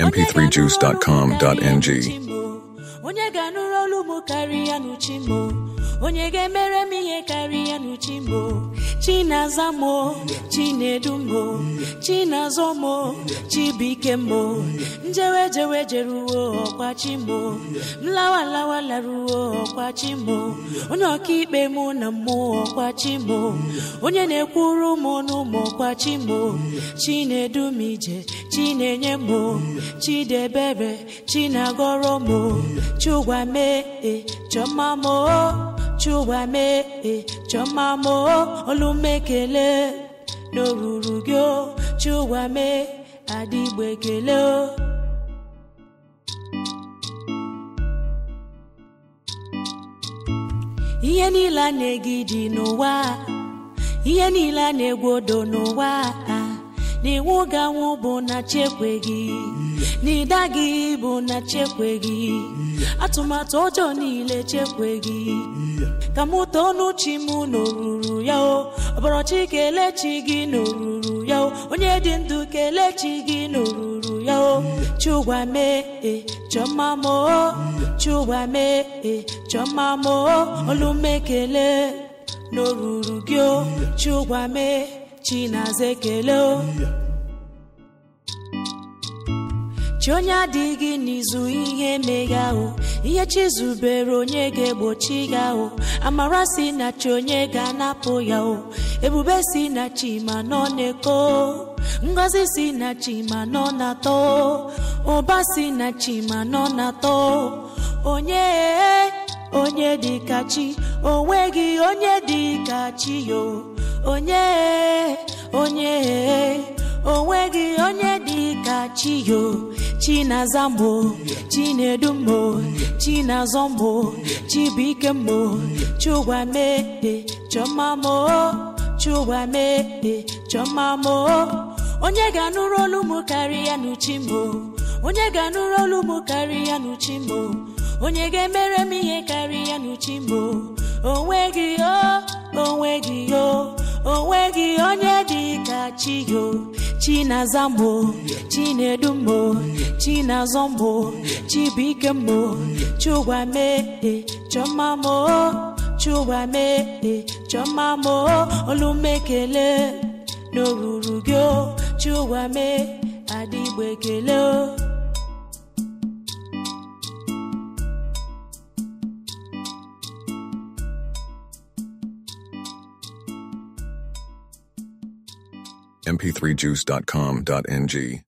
mp3juice.com.ng onye ga-emere m ihe karịa n'uchi mo chinaza mo chinedu mo chinazọ mo chibike mo njewe jewe jeruo ọkwachi mo mlawa lawa laruo chi mo onye ọkaikpe mụ na mmụọ chi mo onye na-ekwuru mụ n'ụmụ ọkwachi mo chinedu m ije chinenye mo chidebere chinagọrọ mo chugwa mee chọmma mo chụwa mee chọma olume olumekele n'oruru gị chụwa mee adịgbe kele ihe niile a na-egide n'ụwa ihe niile a na n'ụwa a n'iwu gị anwụ bụ na chekwe gị n'ịda gị bụ na chekwe gị atụmatụ ọjọọ niile chekwe gị ka mụ too n'uchi m n'oruru ya o ọbọrọchi kelee chi gị n'oruru ya onye dị ndụ kelee chi gị n'oruru ya o mee e chọmma m o mee e chọmma m o olumekele n'oruru gị o mee chinaza ekele chi onye adịghị n'izu ihe meghe ahụ ihe chizubere onye ga-egbochi ya o amara si na chi onye ga-anapụ ya o ebube si na chi ma nọ na-eko ngozi si na chi ma nọ na-atọ ụba si na chi ma nọ na-atọ onye onye dị ka chi onweghị onye dị ka chi yo onye onye onweghị onye ka chiyo chinazamo chinedumo chinazọmo chibuikemo chugwamede chọmamo chugwamede chọmamo onye ga-anụrụ olu m karịa n'uchimo onye ga-anụrụ olu m karịa n'uchimo onye ga-emere m ihe karịa n'uchimo onweghị o onweghị o onweghị onye dị ka chiyo chinazambo chinedumbo Chinazombo chibikembo chugwamede chọmamo chugwamede chọmamo olumekele n'oruru gị chugwame adịgbo ekele mp3juice.com.ng